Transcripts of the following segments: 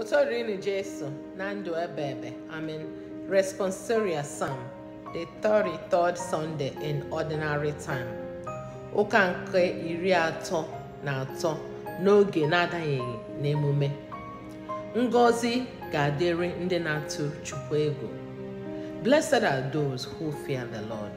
otorini jesu na ndụ ebe ebe amen responsoria sam the 33rd sunday in ordinary time ụka nke iri atọ na atọ n'oge na-adanyeghị n'emume ngozi ga-adịrị ndị na-atụ chukwu ego blessed are those who fear the lord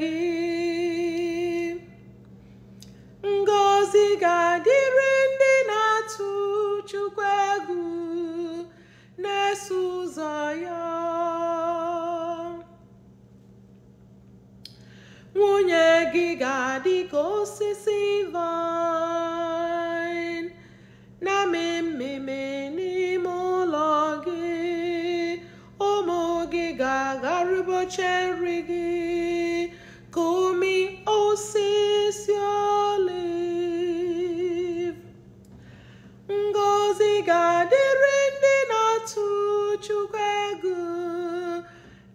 gị ngọzi ga-adịrị ndị na-atụ Chukwu egwu na-eso ụzọ ya nwunye gị ga-adị ka osisi vine na mmemme n'ime ụlọ gị ụmụ gị ga-agharịboche nri gị ga-adịrị ndị na-atụ Chukwu egwu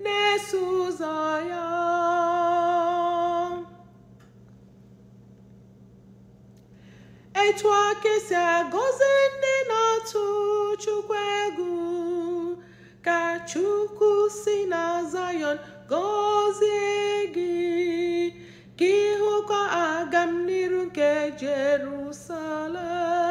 na-eso ụzọ ya etu aka esi agọzi ndị na-atụ Chukwu egwu ka Chukwu si na Zayọn gọzie gị ka ịhụkwa aga n'iru nke Jerusalem